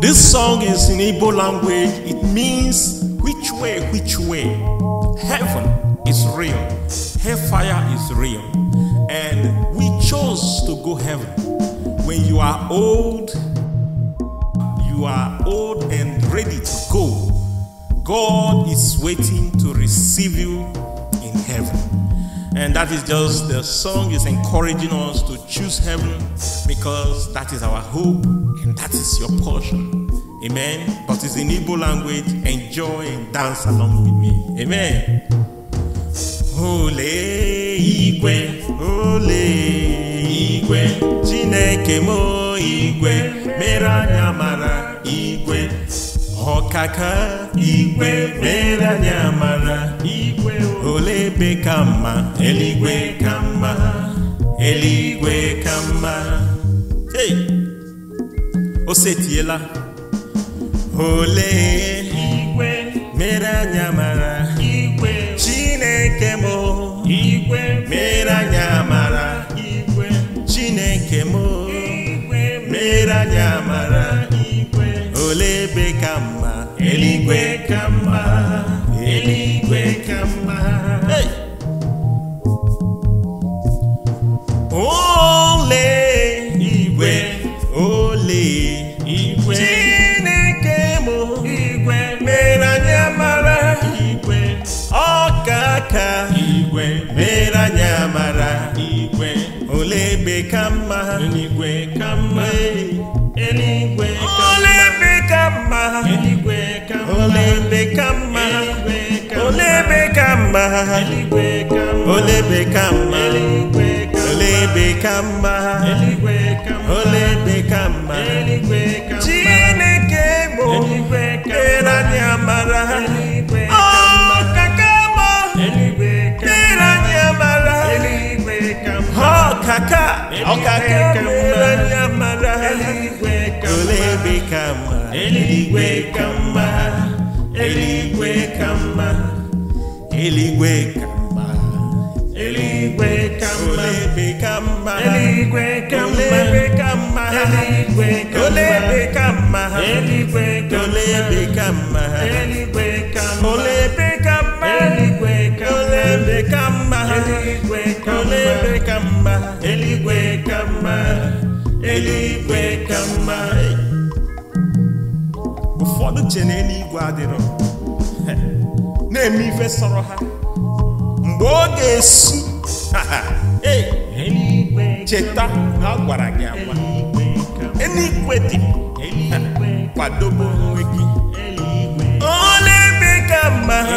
This song is in Igbo language. It means which way, which way. Heaven is real. Hellfire is real. And we chose to go heaven. When you are old, you are old and ready to go. God is waiting to receive you in heaven. And that is just the song is encouraging us to choose heaven because that is our hope and that is your portion. Amen. But it's in Igbo language. Enjoy and dance along with me. Amen. Ole igwe, ole igwe, Chineke mo igwe, mere anya igwe, ọkaka igwe, mere anya igwe. Olebe ka mma eluigwe ka mma eluigwe ka mma hey o setiela olee igwe mere anya mara igwe chineke m igwe mere anya mara igwe chineke m igwe mere anya mara igwe olee ebe ka mma eluigwe ka mma Kamba, be Kamba, anywhere Kamba, anywhere Kamba, be Kamba, anywhere Olebekamba Olebekamba Chineke amara ọkaka ọkaka mere anya mara eluigwe ka mma eluigwe ka mma eluigwe ka mma eluigwe ka mma eluigwe ka mma olebe ka mma eluigwe ka mma olebe eluigwe ka mma ụfọdụ che na eluigwe adịrọ na-eme ife sọrọ ha mgbe ọ ga-esu cheta na ọ gwara gị agwa eluigwe dị kwadobe onwe gị ọ na-eme ka mma ha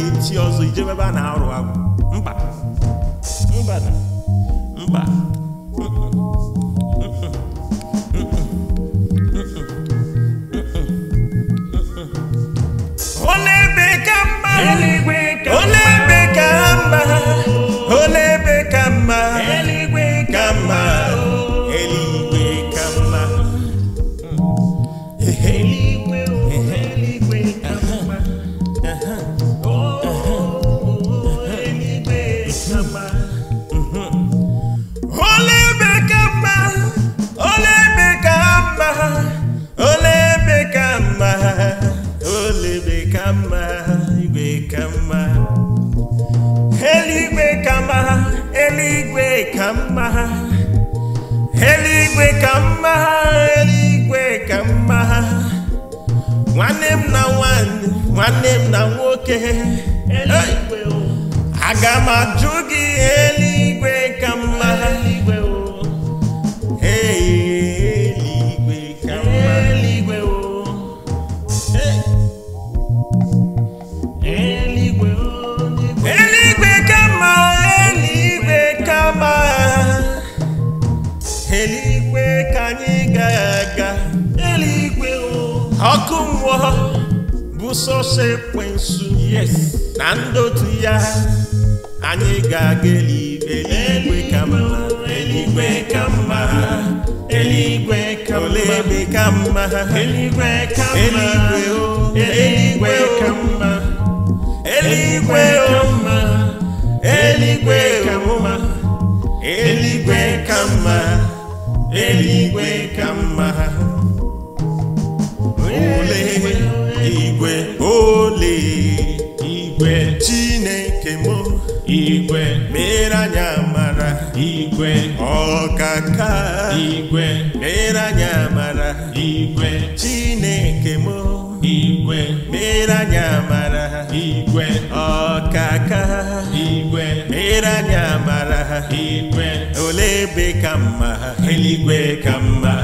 na-eti ọzọ ijebe ebe a na-arụ agwụ mba mba mba igwe ka mma igwe ka mma eluigwe ka mma eluigwe ka mma eluigwe ka mma eluigwe ka na nwanne nwanne na nwoke aga m ajụ gị Yes, na ndotu ya anyị ga-aga eluigwe ka mma eluigwe ka mma eluigwe ka olebe ka mma eluigwe ka mma eluigwe ka mma eluigwe ka mma eluigwe ka mma eluigwe ka mma eluigwe igwe chineke mụ! igwe mere anyị amara igwe ọkaka igwe mere anyị amara igwe chineke mụ! igwe mere anyị amara igwe ọkaka igwe mere anyị amara igwe ole ebe ka mma eluigwe ka mma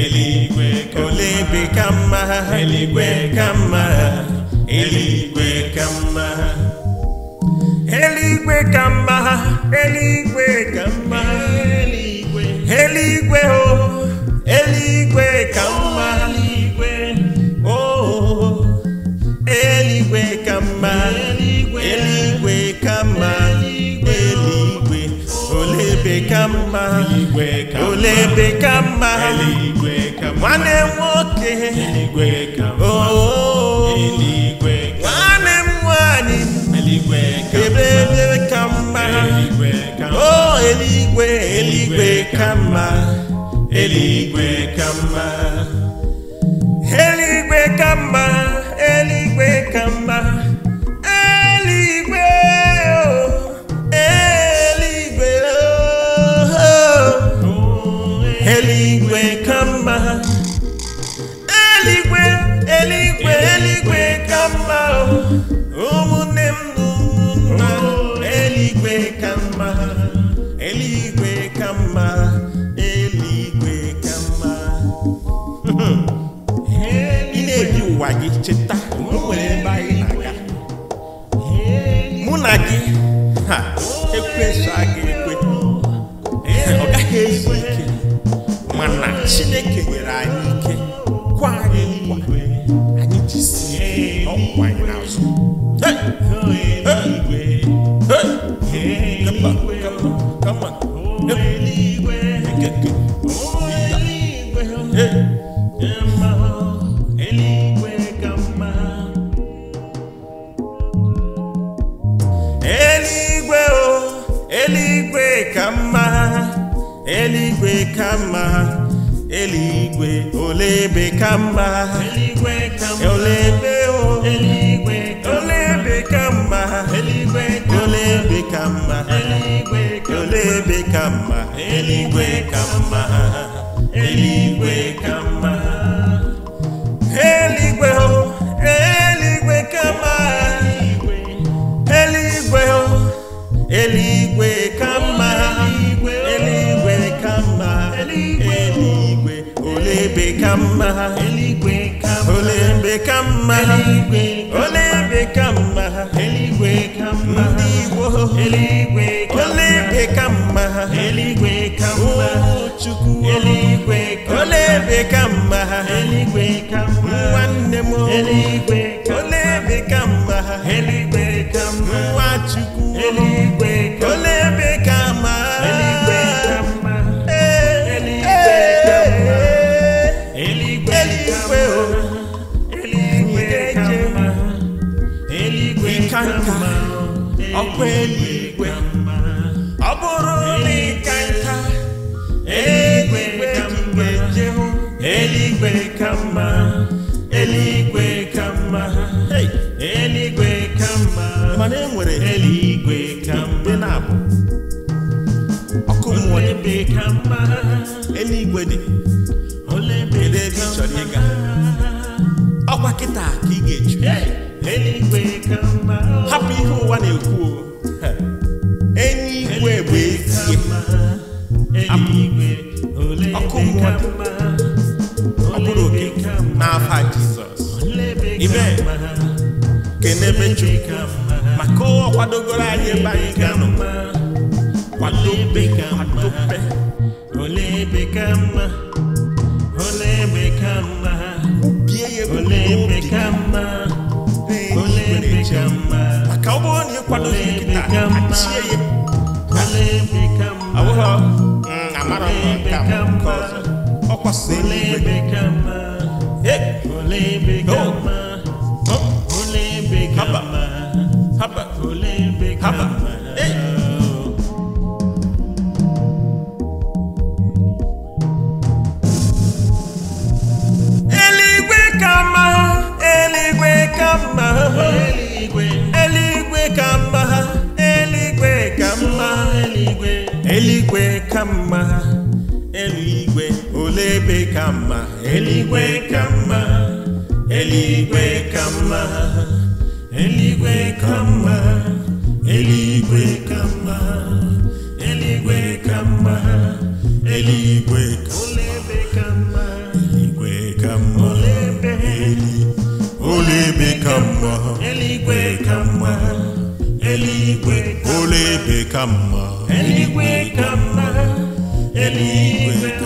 eluigwe ole ebe ka mma eluigwe ka mma eluigwe eluigwe ka mma ha eluigwe ka mma eluigwe o oh, eluigwe ka mma o eluigwe oh, ka mma eluigwe ka mma eluigwe olebe ka mma olebe ka mma nwanne nwoke oh, nwanne m nwaanyị m ebe ebe o eluigwe eluigwe ka mma eluigwe ka mma Eligwe ka mma oh, ụwa gị cheta m nwere ebe anyị na-aga mụ na gị ha ekwensu aga ekwe ọ gaghị ezu ike mana chineke nyere anyị ike kwa anyị nkwa anyị jisie ọkwa anyị n'azụ Come on, come on, come on. eluigwe ole ebe ka mma ole ebe o ole ebe ka mma ole ebe ka mma ole ebe ka mma eluigwe ka mma eluigwe ka mma Come, mma ha olembe ọkwa eluigwe ọ bụrụ na ịka nka eluigwe ka mma jehụ eluigwe ka mma eluigwe ka mma eluigwe ka mma mana e nwere eluigwe ka mma na-abụ ọkụ mmụọ dị eluigwe dị kedu ebe ị chọrọ ịga ọkwa kịta ka ị ga-eju hapụ ihe ụwa na-ekwu eluigwe bụ ezi ọkụ mmadụ ọ bụrụ oke n'afa Jizọs ime kenebe Chukwu maka ụwa kwadogoro anyị ebe anyị ga-anọ kwadobe kwadobe kwubie ya ebe maka ọ bụrụ na ịkwado ihe nkịta achie ya awụghọ mm, amara ka nke ọzọ ọ kwasị eluigwe eh. oh. haba haba haba ebe ka mma eluigwe ka mma eluigwe ka mma eluigwe ka mma eluigwe ka mma eluigwe ka mma eluigwe ka mma eluigwe ka mma olebe ka mma eluigwe ka mma eluigwe olebe ka mma eluigwe ka mma eluigwe ka mma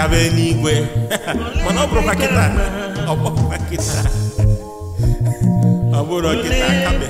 gaba n'igwe mana ọ bụrụkwa kịta ọ bụrụkwa kịta ọ bụrụ kịta kabe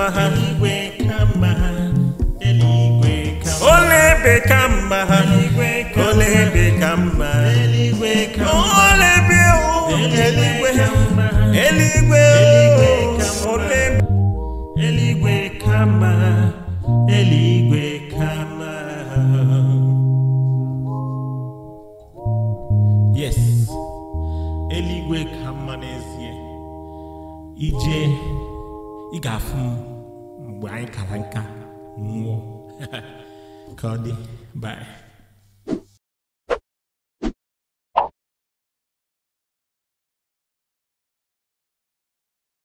mma ha igwe kama ha eluigwe kama olebe mma ha igwe olebe eluigwe olebe yes ka mma n'ezie ije ị ga-afụ m bye kalanka mo kadi bye